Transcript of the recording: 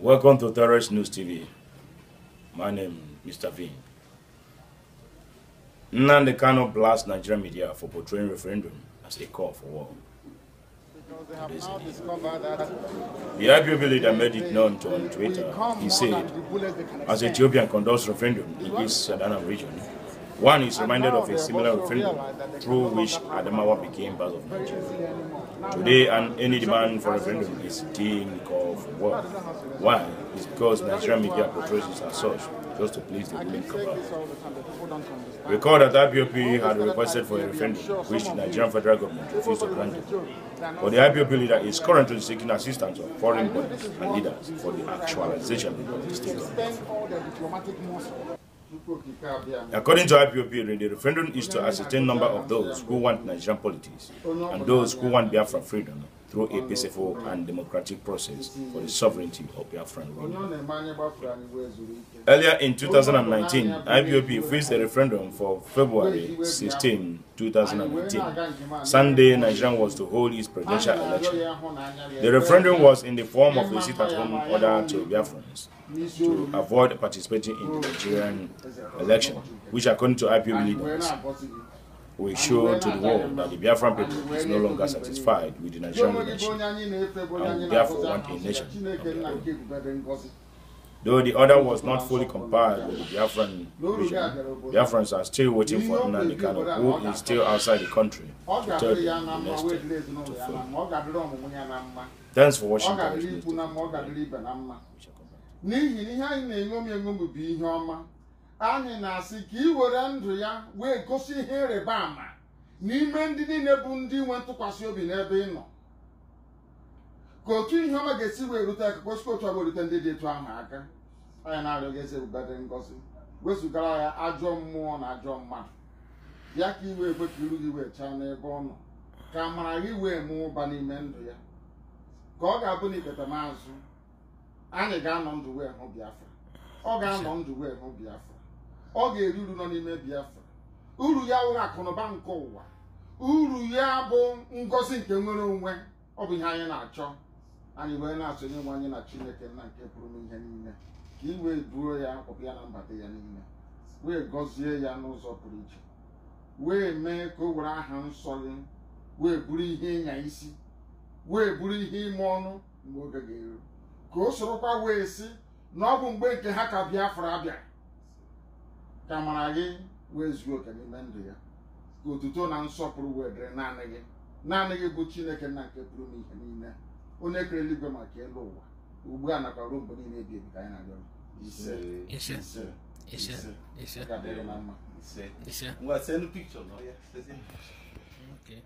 Welcome to Terrorist News TV. My name is Mr. V. Nnamdi cannot blast Nigerian media for portraying referendum as a call for war. The IPOB leader made it known to on Twitter. He said, as Ethiopian conducts referendum in this Sadanam region, one is reminded of a similar referendum through which Adamawa became part of Nigeria. Today, an, any demand for referendum is deemed of war. Why? It's because Nigerian media portrays it as such, just to please the ruling cabal. Recall that IPOP had requested for a referendum, which the Nigerian federal government refused to grant it. But the IPOP leader is currently seeking assistance of foreign bodies and leaders for the actualization of the state According to IPOP, the referendum is to ascertain number of those who want Nigerian politics and those who want Biafra freedom through a peaceful and democratic process for the sovereignty of Biafran Earlier in 2019, IPOP faced a referendum for February 16, 2019. Sunday, Nigeria was to hold its presidential election. The referendum was in the form of a sit-at-home order to Biafrans to avoid participating in the Nigerian election, which according to IPOB leaders we show to the world that the Biafran people is no longer satisfied with the Nigerian nation and therefore want a nation Though the order was not fully complied with the Biafran region, Biafrans are still waiting for Nnamdi Kano, who is still outside the country, to tell them the next to Thanks for watching. We shall come back. anyị na-asị ka ị were ndụ ya wee gosi ihe ịrịba ama n'ime ndị niile bụ ndị nwe ntụkwasị obi n'ebe ị nọ ka otu ihe ọma ga-esi wee rute akụkọ otu ọbụ erute ndị dị etu ahụ aka anyị na-arịọ gị eze ebube dị ngọzi wezụgara ya ajọ mmụọ na ajọ mmadụ ya ka iwe ekwe ka iru gị wee chaa n'ebe ọ nọ ka amara gị wee mụọ ụba n'ime ndụ ya ka ọ ga-abụ na ikpeta maazụ anyị ga-anọ ndụ wee hụ Biafra ọ ga-anọ ndụ wee hụ Biafra ọ ga-eri uru nọ n'ime Biafra uru ya wụrụ akụnụba nke ụwa uru ya bụ ngozi nke nwere onwe ọ bụ ihe anyị na-achọ anyị wee na-achọ onye nwe anyị na Chineke nna nke pụrụ n'ihe niile ka i wee duo ya ọbụ ya na mbata ya niile wee gọzie ya n'ụzọ pụrụ iche wee mee ka o were aha nsọ gị wee bụrụ ihe ịnya isi wee bụrụ ihe ime ọnụ mgbe oge ga-eru ka o sorokwa wee sị na ọ bụ mgbe nke ha ka Biafra abịa ka mara gị wee zuo oke n'ime ndụ ya ka otuto na nsọpụrụ wee dịrị naanị gị naanị gị bụ chineke na nke pụrụ n'ihe niile onye kere eluigwe maka elu ụwa ugbu a nakwa ruo mgbe niile ebi ebi ka anyị na-arịọ ya Okay.